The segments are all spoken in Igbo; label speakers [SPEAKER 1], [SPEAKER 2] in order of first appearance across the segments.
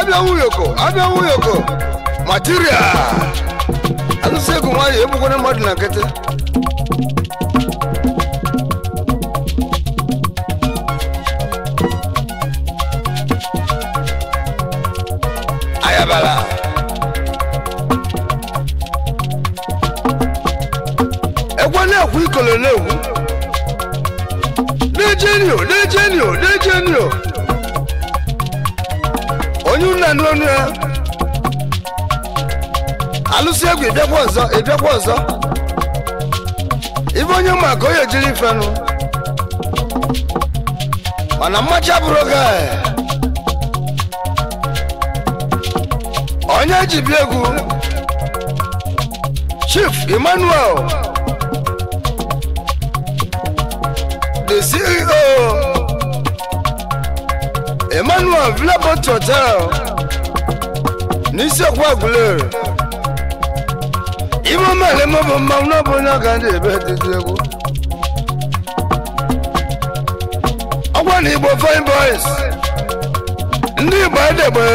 [SPEAKER 1] abịanwu ụyọkọ abịanwu ụyọkọ material anụsị egwu nwayọ egbukwana mmadụ na nkịtị ayabala egwe na-ekwu ikolo na-egwu na-ejenio na-ejenio na-ejenio kedu na onu ya alụsị egwu ịbịakwa ọzọ ịbịakwa ọzọ ibe onye ma jiri onye mana mmacha bụrụ oge onye ji bịa egwu chief emmanuel the ceo emmanuel vilabot hotel n'isi okwu agụlere ime omele m bụ mmanwụ n'ọbụ onye ọ ga ndị ebe dịdị egwu ọgwa na igbo fine boys ndị igbo edegbe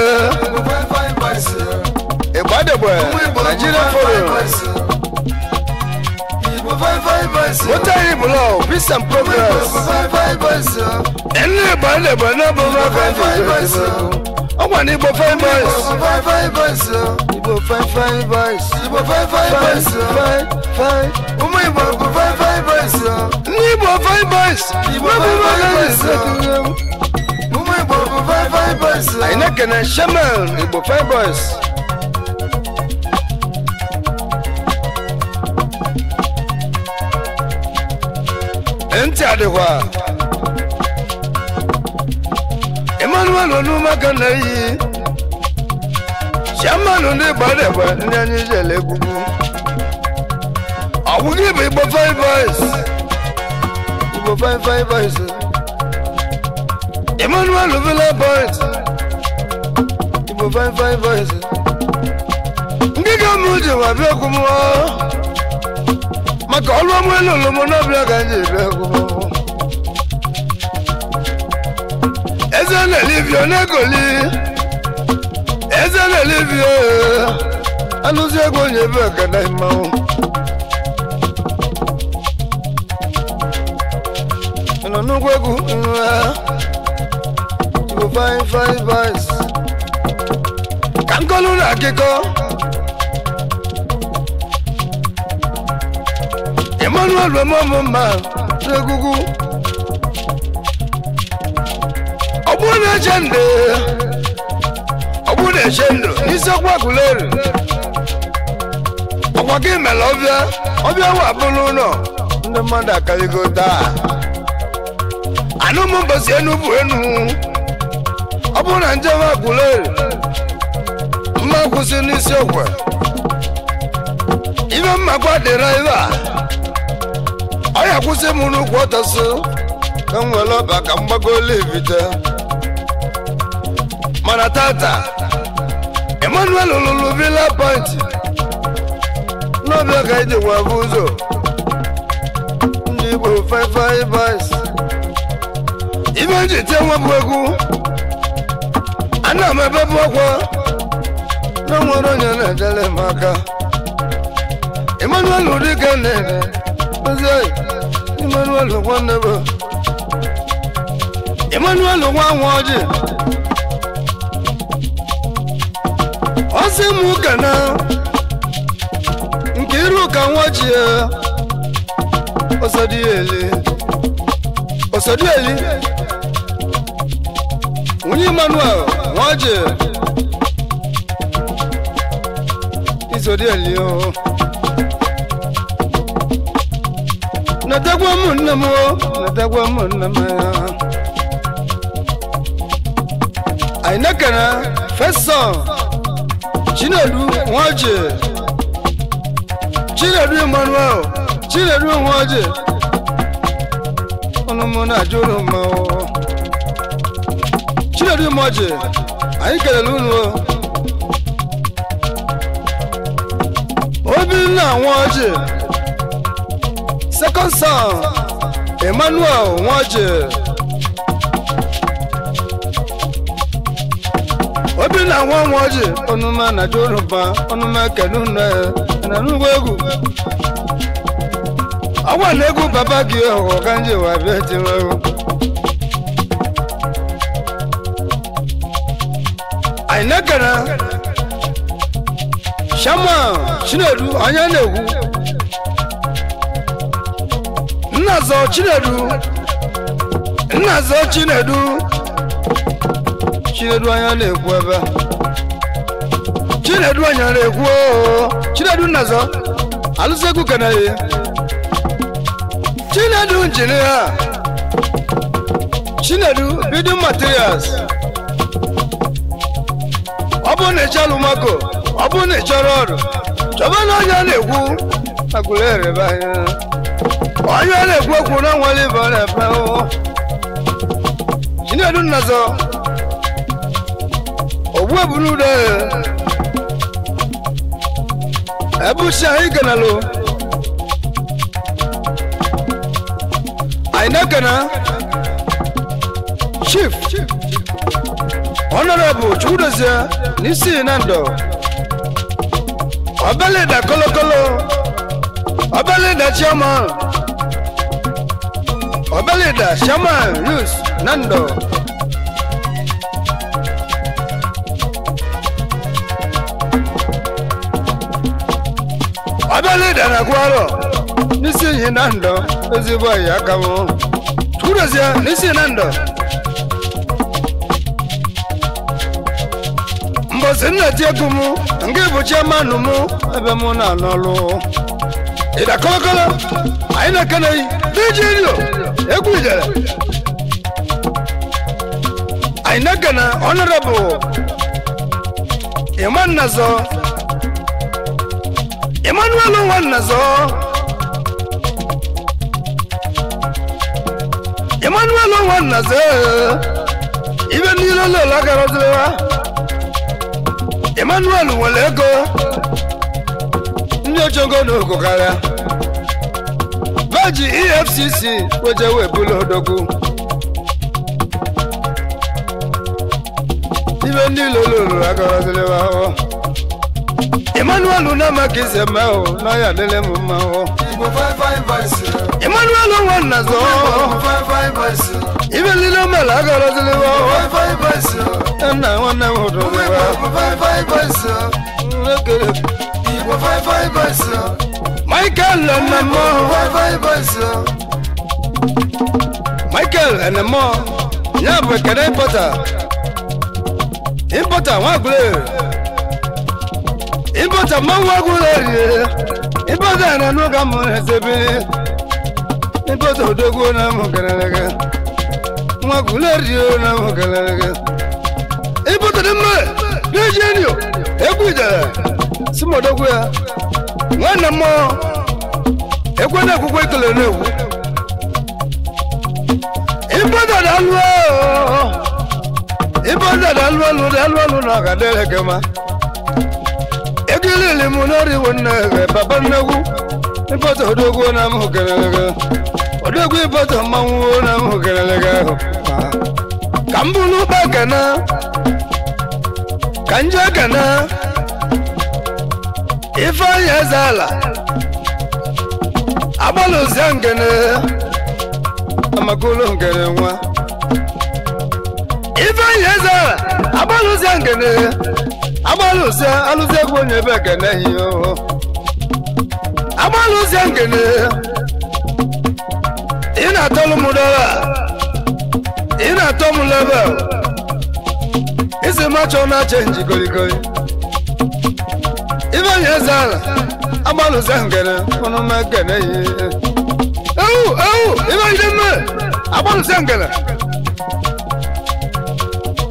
[SPEAKER 1] igbo edegbe naijiria forum What are you below? Peace and progress. ẹnlẹ bọ ẹnlẹ bọ ẹnlẹ bọ five five five boys o ọgbà ní ibo five boys five five boys ibo five five boys ibo five five boys o five five ọmọ ibo ibo five five boys ní ibo five boys ibo five five boys ọmọ ibo ibo five five boys o àyìnlẹ́kẹ̀ẹ́ sẹ́mẹ̀l ibo five boys. ntị adịghị a Shamanu n'ụmụaka na iyi Shamanu ndị gbadagba ndị anyị jele egwugwu ọ bụghị bụ Igbo five boys Igbo five five boys Emmanuel Villa boys five five boys ndị ga bịa maka ọrụ ọmụ elu olomọ ga ka anyị eze na n'Egoli eze na anụzi ego onye ebe ọgada mmanwụ nọ n'ugwu egwu nwa bụ fine fine boys ka nkolu na akịkọ Emmanuel Mamma Egwugwu na-eche ndụ ọgbụ na-eche ndụ n'isi ọkwa kuleru ọkwa gị mere ọbịa ọbịa wa bụrụ ụlọ ndị mmadụ akarịgo taa anụ m mbọsi enu bụ enu ọ bụrụ na njem akuleru mma kwụsị n'isi ọkwa ibe mmakwa dịra ebe a ọ ya kwụsị m n'ukwu ọtọsụ ka m were ọba ka m gbago olivite mana tata Emmanuel lụrụ Villa Point n'ọbịa ka iji bụ ụzọ ndị Igbo Five Boys Ime nji tie nwebụ egwu ana m ebebụ ọkwa na nwere onye na-edere m aka Emmanuel dịka na-ere ozi Emmanuel nwanne bụ Emmanuel nwa nwa ọjị masị m gana nke iru ka nwa iruka nwaji ọsọdịeli ọsọdịeli onye Emmanuel ji izọdịeli o natakwa m nne m o natakwa m nne m anyị nekere fesọ Chinedu Nwoje Chinedu Emmanuel Chinedu Nwoje ọnụmụ na-ajụrụ mmanwụ Chinedu Nwoje anyị kelere unu Obinna Nwoje second son Emmanuel Nwoje na nwa nwa ọjị ọnụma na jụrụba ọnụma kenu ya na nnukwu egwu Agwa na egwu baba gị ọganji wa bịa tinwego anyị na-ekere shama chinedu anya na-egwu chinedu nnazọ chinedu chinedu anya na-ekwu ebe chinedu anya na-ekwu oh, chinedu nnazọ alụsegwu keneghị chinedu injinia chinedu building materials ọ bụrụ na ịchọrọ alụmako ọ bụrụ na ịchọrọ ọrụ chọba na na-ekwu agụrụ erebe anya onye na-ekwu okwu na nwere ibe ọ na-ebe oh, chinedu nnazọ weburu ude ebusi anyị ganalụ anyị na-egana chief honorable chukwudozie n'isi na ndụ ọbelida kolokolo ọbelida chairman ọbelida chairman yus na abẹ́lẹ́dà náà kú àrọ̀ nísìnyí náà ń lọ ezigbo àyà kàwọ́ túrọ̀síà nísìnyí náà ń lọ. mbọ̀sí nna ti egwu mụ nke bụchi amanụ mụ ebe mụ na-anọ ọrụ ịda kọlọkọlọ anyị na-ekeneghị diji rio egwu ijere anyị na-ekene ọnọrọbụ ịma nnazọ Emmanuel Nwannazo Emmanuel Nwannazo ibe niile lele agaroziwa Emmanuel nwere ego ndị ojogo n'ogo karịa beji EFCC weje webụla odogwu ibe ndị lele agaroziwa ahụhụ Emmanuel unama kisema o na ya lele muma o Igbo 55 vice Emmanuel unwana zo Igbo 55 vice Ibe lilo mela gara zile wa Igbo 55 vice Ena wana wodo wa Igbo 55 vice Lekele Igbo 55 vice Michael Enemo Igbo 55 vice Michael Enemo Nyabwe kere importer Importer wagule Importer ịbọcha mmanwụ agwụla erire ịbọcha na n'ụka mụ na-esebe ịbọcha odogwu na mụ kelelege nwa gwụla erire na mụ kelelege ịbọcha dị mma n'eji enyo egwu ijele si m odogwu ya nwanne mmụọ ekwe na ekwukwe ekele na-ekwu ịbọcha dị alụ ịbọcha dị alụ alụ dị alụ alụ na ọga dịrị kema ojilili m n'oriwo nnaebe papa nnegwu ịbọta odogwu na m hụkerelega odogwu na m ahụ ka m bụ n'ụba ka njọ ekene ifeanyi eze ala agbalụzie ngene amakolo ngene nwa ifeanyi eze ala agbalụzie amalụsị alụsị egwu onye ebe ekene hi amalụsị nkene ị na-atọlụ m ị na-atọ m level isi machọ na chenji goligoli ife onye eze ala amalụsị nkene ọnụ m ekene hi ewu ewu ife ide mme amalụsị nkene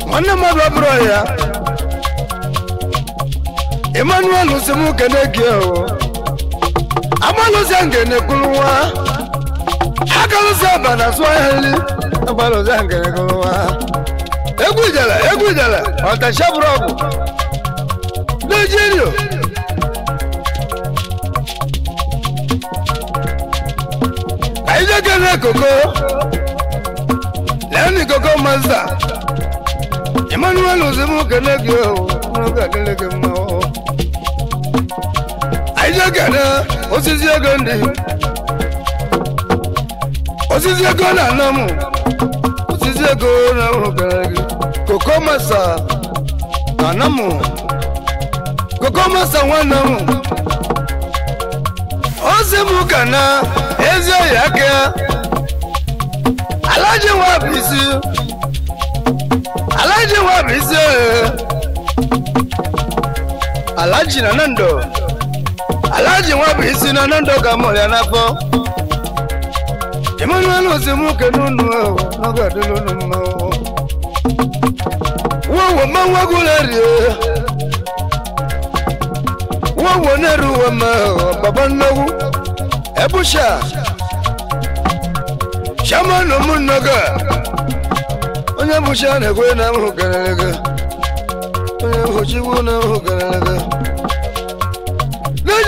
[SPEAKER 1] nwanne mmadụ ọ bụrụ ya emmanuel semu kene gie o amalusia ngene kuluwa akalusia bana swahili amalusia ngene kuluwa egwu ijele egwu ijele ọtashaburu ọgwụ nigeria ayijekene koko lẹni koko masta emmanuel semu kene gie o kene gie mu. anyị na-ekene osisi ego ndi? osisi ego na-anọ osisi ego na-ahụrụ kere gị koko masa na-anọ m koko masa nwanne m ozi m ka na ezi oyi aka alaji nwa bụ isi alaji nwa bụ isi oyi alaji na nando Alaji nwa bụ isi na na ndụ ga mụrụ ya na Emmanuel nwoke n'unu n'oge adịla unu mma wowo mmanwụ agụla rie wowo na-eru uwe ma baba nnewu ebusha shamanụ m nnoga onye bụcha na-egwe na onye na ahụ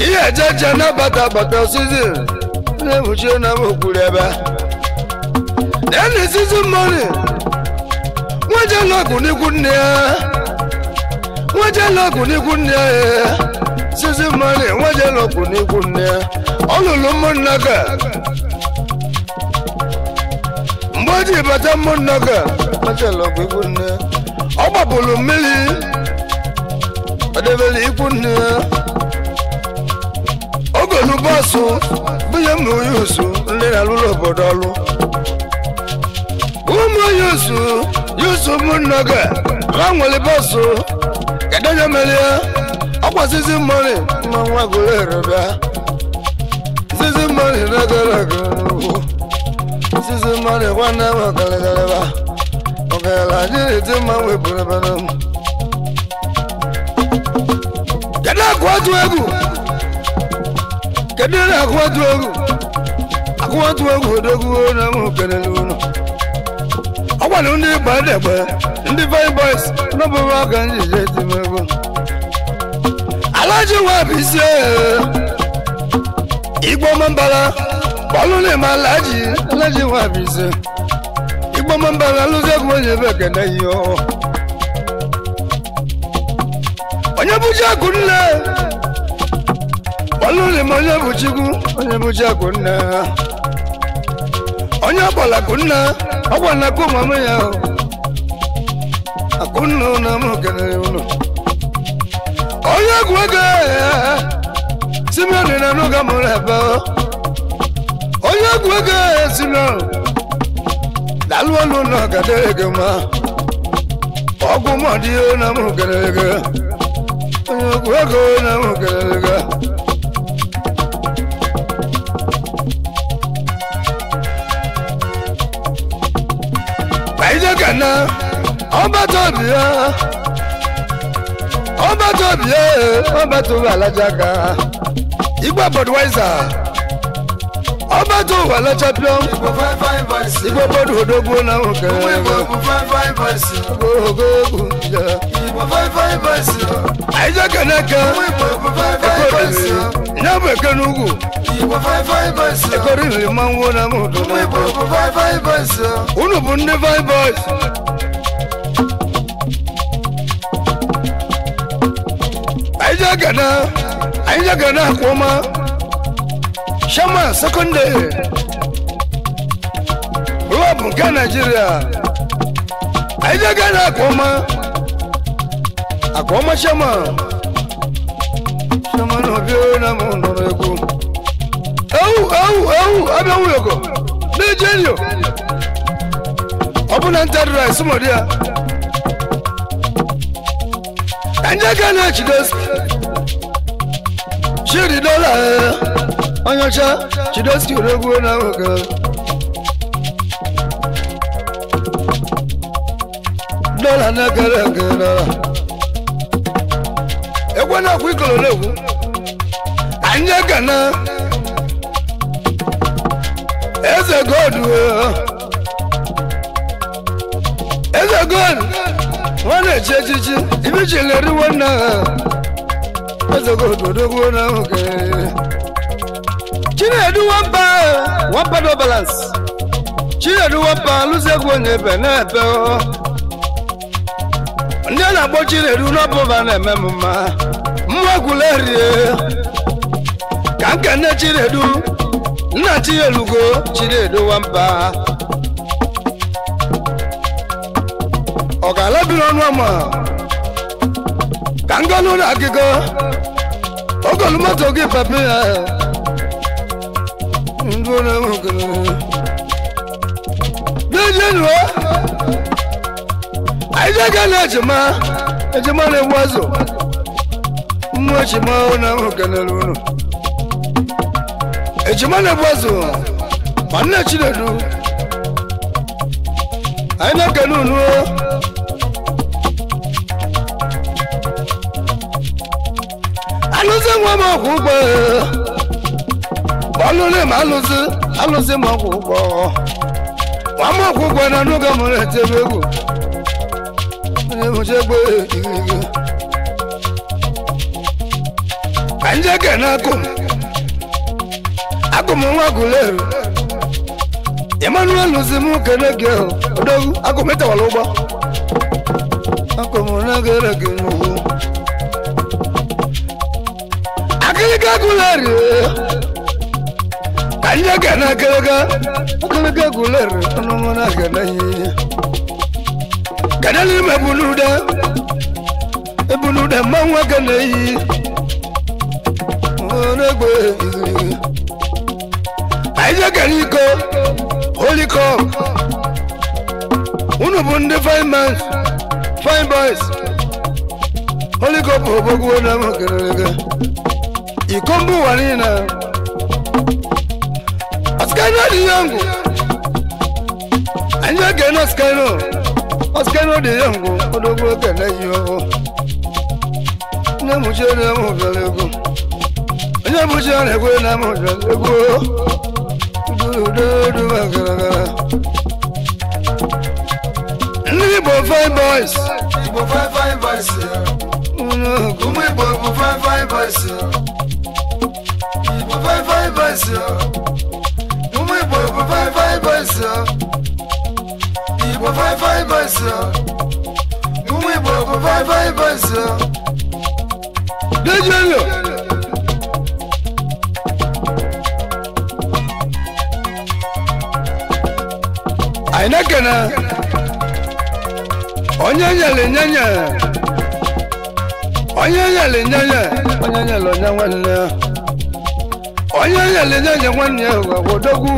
[SPEAKER 1] ihe ejeje nabata bata sizin na-ebuchie na okwuru ebe eni sizin moni nwejelọgụ n'ikwu nne ya nwejelọgụ n'ikwu nne ya sizin moni nwejelọgụ n'ikwu nne ya ọ lụrụ ụmụnna ka mgbe o ji bata ụmụnna ka nwejelọgụ ikwu nne ọ gbapụrụ mmiri ọ debere ikwu nne ya ọrụ bọọsụ bunye ụmụ onye osu ndị na-alụrụ obodo ọlụ ụmụ onye osu yusu ụmụnna gị ha nwere bọsụ kedu mere ya ọkwasịzi ma nwa gụrụ zizi na zizi nwanne m ọgaragaraba na mma m kedu otu egwu kedu ihe na-akụwatụ egwu akụwatụ a odogwu e. na ụmụ kelele ọ gwara ndị ndị n'ọbụbụ aka dị isi igbo n'ime alaji alaji isi igbo onye ebe ihe onye bụji akụ nne ọlụli m onye bụ chikwu onye bụ chi akụ nna onye ọgbọla akụnna ọgbọla akụ ụmụ ya akụnna ụlọ m kenere ụlọ onye egwu ego simioni na n'oge mụrụ ebe onye egwu ego ezinọ dalụ ọlụ ụlọ gadere gị ma ọgwụ mọdị na mụ kenere gị onye egwu ego na mụ kenere gị ije kana ọba tóbi ya ọba tóbi ya ọba tóbi alajaka igba budweiser ọba tó wà lọ champion igbo bọdù odogbo náà kẹrẹ ogógó ya aija kanaka ekoriri nyabo ekene ugwu ekoriri manwo na mudu unu bụ ndị vibos aija gana aija gana akwọma shama sekọndịrị rọbụ nke naijiria aija gana akwọma akọma chairman chairman obi na m nụrụ egwu ewu ewu ewu abịa nwụyọkọ na-eji enyo ọ bụ na ya ka ndị aka na-echidosi chidi dọla e, onyeọcha chidosi oregwu na nwoke dọla na gara nke agwa akwụ ekwu ikoro na-ekwu anyị ekene eze godu eze godu nwa na-echi echichi ibi ji leriwo nna eze godu odogbuo na nwoke chinedu wampa Wapa no balance chinedu wapa lụzie egwu onye ebe na-ebe ndị a na-akpọ chinedu n'ọbụba na-eme m mma nwa rie ka nkene chinedu nna chielugo chinedu nwamba ọ ga-ala biri ọnụ ama ka ngolu na agịgo ogolu moto gị papa ya ndụ na-enwegoro n'ejenuo anyị jega na ejima ejima na-egbu azụ no chima una mukana luno echima na bwazo manna chinedu aina kanunu alusi nwa ma kwụ ma alụsi alụsi ma kwụ ụgbọ nwa ma kwụ ụgbọ na n'oge igirigi anjeke na akum akum nwa guleru emmanuel zimu kene gị ahụ odogu akum etewala ụgbọ akum nagere gị n'ugwu akịrịka guleru ka njeke na akịrịka akịrịka guleru ọnụnụ na agana ihe gana n'ime ebunude ebunude mmanwụ aga na eyi onegbe anyị jegara iko holy cup unu bụ ndị fine men fine boys holy cup obogwo na makerere iko mba ụwa niile ọsikano dị yọngụ anyị jegara na ọsikano ọsikano dị yọngụ odogbo kene yi ọhụ nne m chere m bịara ego Ile mucho le fue la mucho le Du du du magara. Igbo fine boys. Igbo fine fine boys. Uno kumu Igbo Igbo fine fine boys. Igbo fine fine boys. Kumu Igbo Igbo fine fine boys. Igbo fine fine boys. Kumu Igbo Igbo fine fine boys. Dejo yo. anyị na-ekene onye nyere nye nyere onye nyere nye onye onye nwanne ya onye nyere nwanne ya gwagwodogwu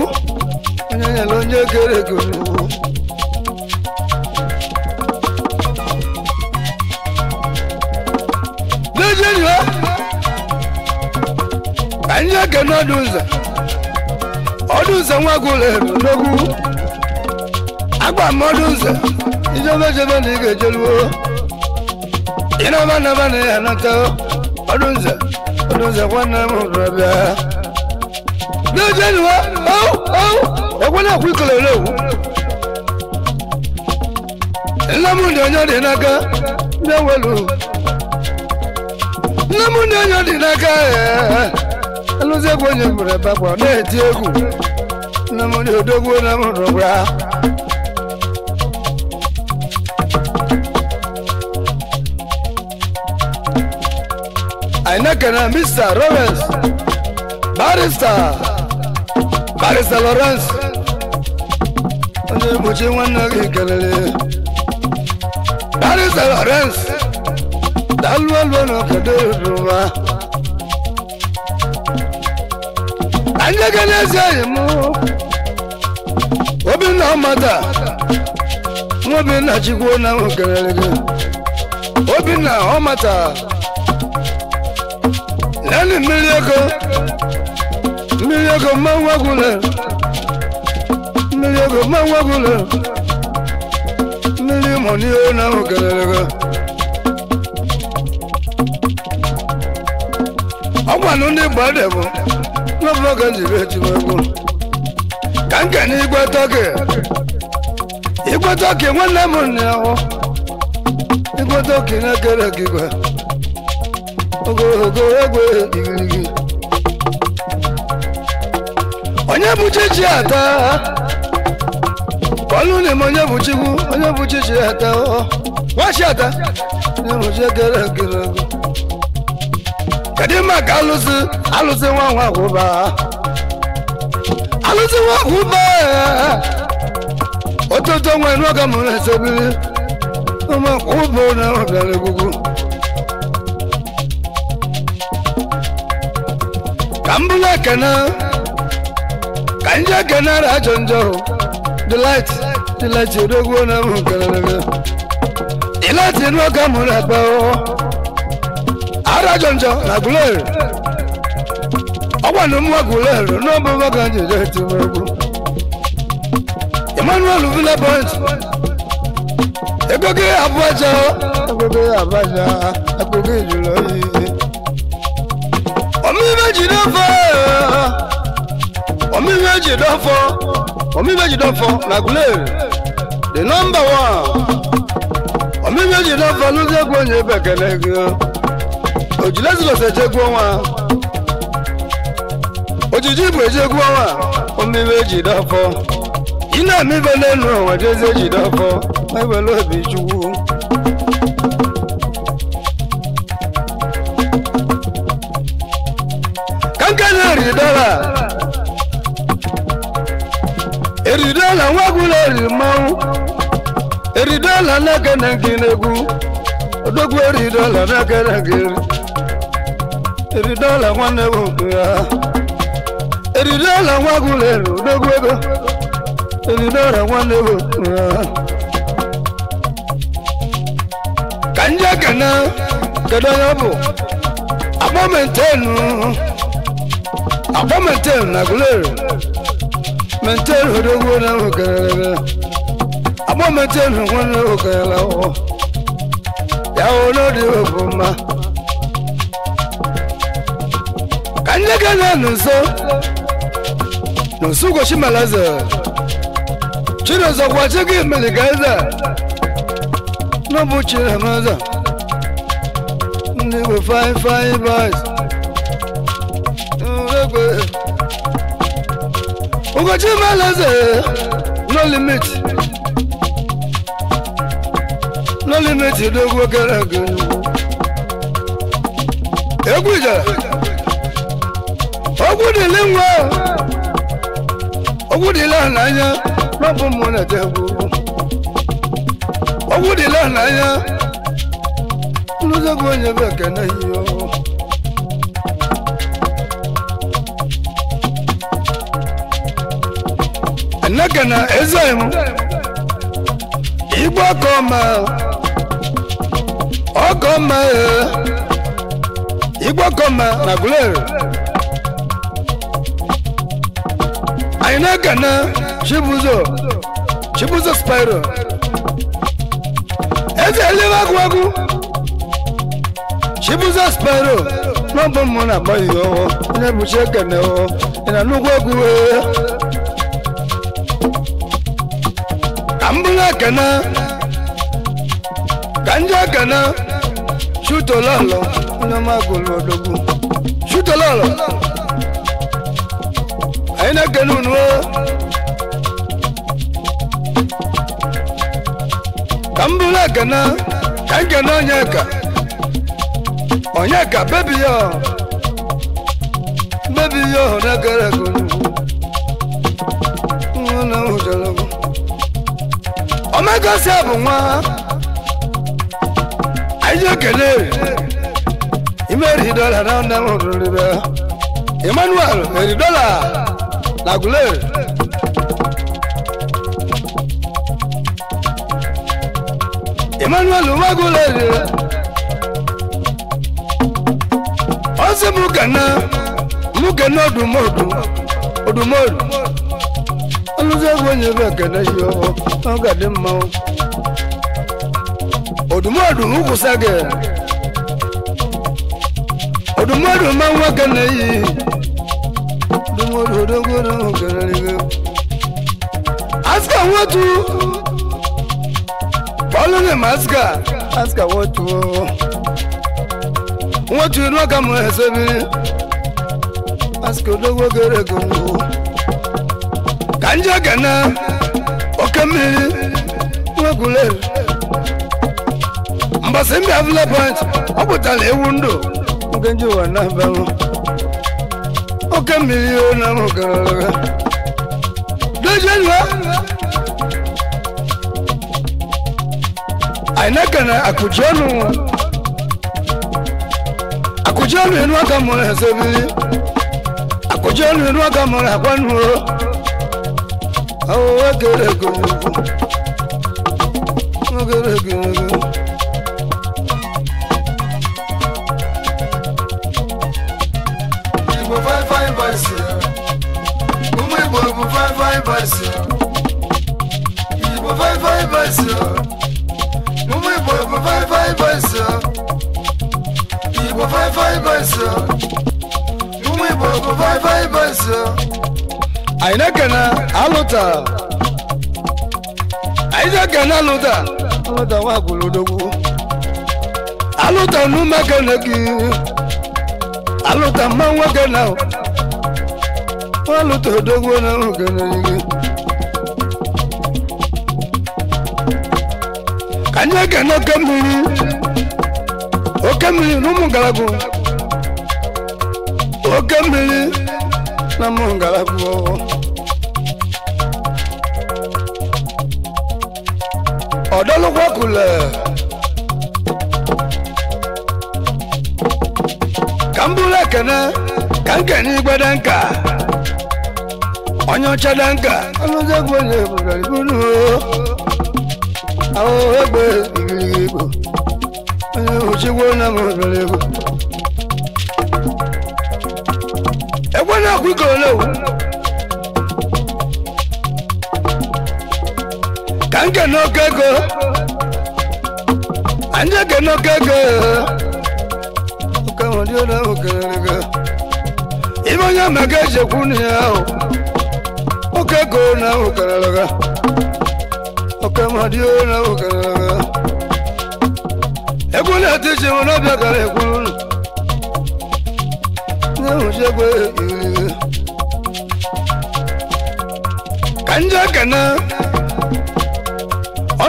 [SPEAKER 1] onye nyere onye gere ego n'ugwu n'ejienyi anyị na ọdụ nza ọdụ nza nwa agba mmadụ nze ijebe jebe na ị ga-ejeluo na naba ya anata ọdụ nze ọdụ nze nwanne m hụrụ bịa. na-ejeluo ekwena ekwu ikolere owu nne m dị onye dị n'aka ndị welu nne m dị onye dị n'aka alụzi egwu onye na-eti egwu nne m dị odogwu na m hụrụ ainekana mr roberts barista barista lawrence onye egbochi nwanne gị kelele barista lawrence dalụelụ n'obodo yoruba anyị gị n'ezi enyi m obinna ọmata nwa obinna chikwuo na nwokelele gị obinna ọmata lenu mmiri ego mmiri ego mmanwụ agwụla mmiri ego mmanwụ agwụla mmiri mọ n'ihe na ahụ kelere gị ọgwanụ ndị gbade bụ ka m kene igwe tọki igwe tọki nwanne m nne igwe tọki na-ekere ogo ogo egwe igirigi onye bụ chichi ata ọlụlim onye bụ chikwu onye bụ chichi ata nwachi ata onye bụ chiekere ekere ego kedu maka alụsị alụsị nwa nwa kwụba alụsị nwa kwụba ototo nwe n'oge mụrụ esebiri ụmụ kwụba na ọbịara egwugwu kambula kana kanja kana rajonjo delight delight odogwo na mu kana na delight no kamura pa o oh. arajonjo ah, ragule ọgbà ló mú agule ro no bo ba kan jeje ti mo ku Emmanuel Villa Point Egoge Abuja Egoge Abuja Egoge Ijulo yìí omihe ji dọfọ omihe ji dọfọ na gulere the number one omihe ji dọfọ n'ụzọ egwu onye ebe ekele gị ojilezilọsa ejegwu ọnwa ojiji bụ ejegwu ọnwa omihe ji dọfọ ị na-eme ibe n'elu onwe jezi eji dọfọ ewere obi chukwu Eridola eridọla nwa ọbụla eri mmanwụ eridọla n'aka na nke na-egwu odogwu Eridola n'aka na Eridola eridọla nwanne bụ nke ya eridọla nwa eri odogwu ego eridọla nwanne bụ nke ya ka ndị aka na kedu onye ọ bụ akpọmentenu akpọ metel na gulere metel hodogwo na hokerere akpọ metel hogwo na hokerere ọhụụ ya hụ n'ọdị ofu mma ka na nso n'usu gochi malaze chinọzọ gwa gị meligaze N'obu chinamaza ndị bụ fine fine boys gbé. Ugochi Meleze no limit no limit dogo kere ege. Egwu ijele ogwu dịlị nwa ogwu dịlị n'anya n'ọbụ m na-ete egwu ogwu dịlị n'anya nlụzọgwu onye bụ ekene ihe Igboke na Ezem Igboke ọma ọgọ ọma Igboke ọma na Gulere anyị na na Chibuzo Chibuzo Spiro eze eliwe agwagwu Chibuzo Spiro n'ọbụ mụ na-agbaghị onye bụchi ị na nnukwu egwu wee ganja kana ganja kana shuto lolo una magolo dogo shuto lolo aina kanunu kambula kana kankana onyeka onyeka bebi yo bebi yo nagara kunu Agọzie bụ nwa anyị ekele imeri dọla na nne m rụrụbe Emmanuel meri dọla na gule Emmanuel nwagule ozi m gana m gana odumodu odumodu ọbụzi egwu ọ ga-adị mmanwụ odumọdum kwụsa gị ma aska aska aska ka nje gana oke mmiri nwegulere mbọsị mbịa village ọ pụtara ewu ndụ nke nje ụwa na-abalụ oke mmiri o na mụgarara dojenua anyị na-ekene akụji ọnụ akụji ọnụ enu aka mụrụ ha sebiri akụji ọnụ enu aka mụrụ akwa nụ ogerego ogerego. Igbo fine fine boys ya, ụmụ Igbo bụ fine fine boys ya, Igbo fine fine boys ya, ụmụ Igbo bụ fine fine boys ya, Igbo fine fine boys ya, ụmụ Igbo bụ fine fine anyị na-ekene alụta anyị na-ekene alụta alụta nwa gwụlodogwu alụta n'ume kene gị alụta mma nwa kene nwa alụta odogwu na nrụ kene gị Anyị na ekene oke mmiri oke mmiri na ụmụ ngalagwu oke mmiri na ụmụ ngalagwu ọ̀dọ́ ló wọ́kulẹ̀. kambule kene kankeni gbedenka ọnyọchedenka ọlọ́dẹ́gbẹ̀lẹ̀ ìbùdàdìbùnú àwọn ẹgbẹ́ ìgbìyànjú ẹni òṣìwò náà mọ̀ ìbẹ̀rẹ̀ ìbò. ẹgbẹ́ náà kú ìkọ̀ọ́lẹ́wò. anje n'okego anje gị n'okego ụka Oka ọrụ ahụ kelere gị ime onye ma ga ejekwu o, ahụ go na ahụ kelere gị ụka nwere na ahụ kelere gị egwu na-eti iche nwere ọbịa gara ekwuru unu na-enwuchi egwu ekiriri gị ka nje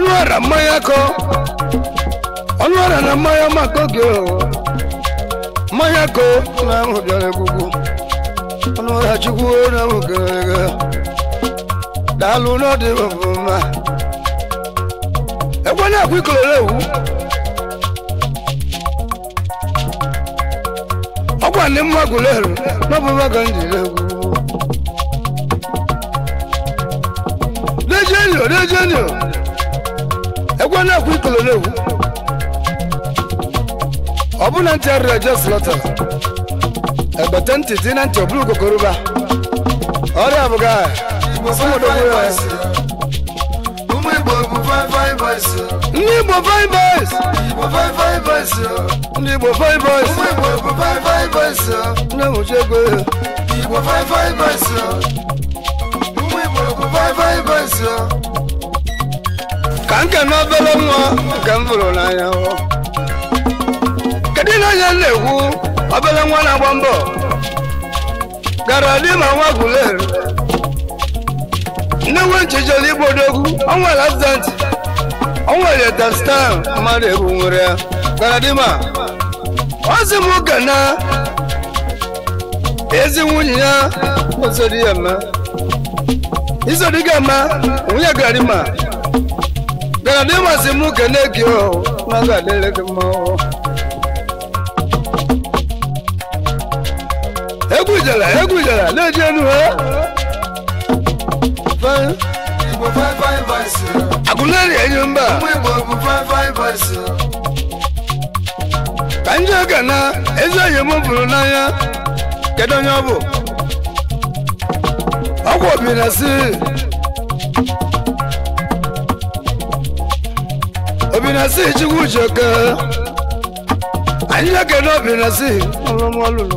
[SPEAKER 1] ọnụara mmanya kọ ọnụara na mmanya maka oge mmanya kọ na ahụ bịara egwugwu ọnụara chukwu na ahụ gara aga daalụ n'ọdị mma ekwe na-ekwe ikolere ewu ọkwa gwa ndị mma gụlerụ n'ọbụ mma ndị m jiri egwu Dejenio, Dejenio. egwu na-ekwu ikolo na-ekwu ọ bụ na ntị arịa eje slọta Ekpete ntị dị na ntị ọbụla ugokoroba ọrịa abụghị aha ndị Igbo five ndị Igbo five ndị mụchi ego Igbo five ka nke na obere nwa nke m fụrụ n'anya kedu na onye na-ekwu obere nwa na-agba mbọ gara di ma nwa gwuler nne nwe nchijere igbo odogwu o nwere azent o nwere dastan mmadụ egwu nwere ya gara di ma si m oge na ezi nwunye ya ozodi ya ma izodi ga ma nwunye garima bịara na ịmasị m kene gị nwa ga-adịrị gị mma egwu jere egwu jere na-eji enu ha agụleri enyi mba ka ndị oge na ezi enyi m bụrụ n'anya kedu onye ọ bụ ọgwụ obi na si na si chukwu jeke anyị na-ekene obi na si